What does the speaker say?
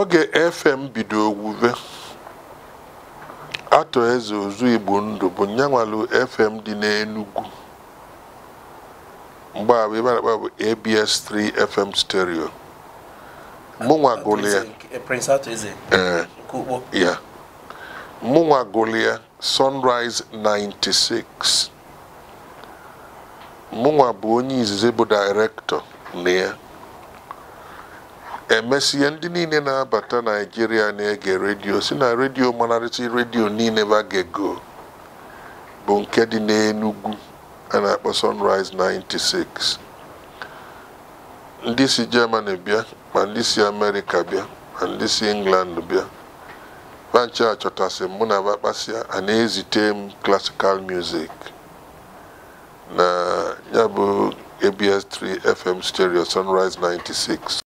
oge fm bido owuwe atọ eze ozu igbo ndụ bụ nyanwalu fm dị n'enugwu mgbe abụ ebe akpa bụ abs 3 fm stereo mụnwa ya e, mụnwa sunrise 96 mụnwa bụ onye izizi bụ director na ya emesie ndị niile na-abata naijiria na-ege redio si na redio manarịta redio niile bagego bụ nke dị n'enugwu a na-akpọ sunrise 96 ndị si germany bịa ma ndị si amerịka bịa ma ndị si england bịa banche achọtasị mụ na bakpasia a na-ezite m classical music na ya bụ abs3 fm stereo sunrise 96